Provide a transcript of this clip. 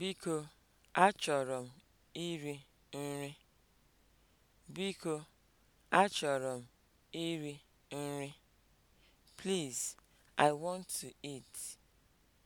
Biko, achọrọ m iri nri. Biko, achọrọ m iri nri. Please, I want to eat.